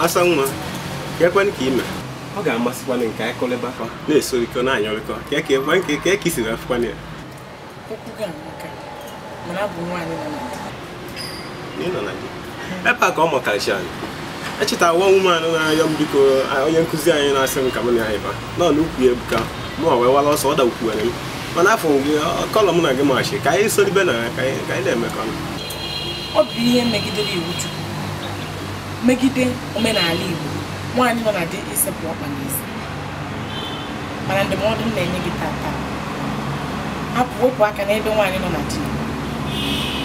asa nwa kekwen ka ime ọ ga-amasịkwana nke anyị kọlịba na-esorikọ na-anyọrịkọ ka eke isiri afụkwana ya ebe a ka ọ mụtarachi anyị echeta nwa nwume anụ na-arịọ m biko onye nkụzi anyị na-asị m ka m na anyị ba nọ n'ukwu ya ebuka mụọ wee wara ọsọ ọ dakwukwere m mana afọ gị kọlọ mụ na gị machi ka anyị soribe na ya ka anyị na-emekọ ọ bụ ihe megidere iwu Chukwu megide omenala Igbo nwaanyị nọ na di ịsepụ ọkpa n'isi mana ndụmọdụ m na-enye gị tata hapụ wepụ aka n'ebe nwaanyị nọ na di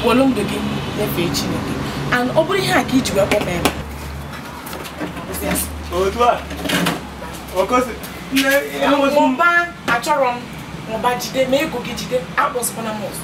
wolu ndụ gị nyefee Chineke and ọ bụrụ ihe a ka iji wee mụba achọrọ m mụba jide ma ego gị jide akpọsikwana m ọzọ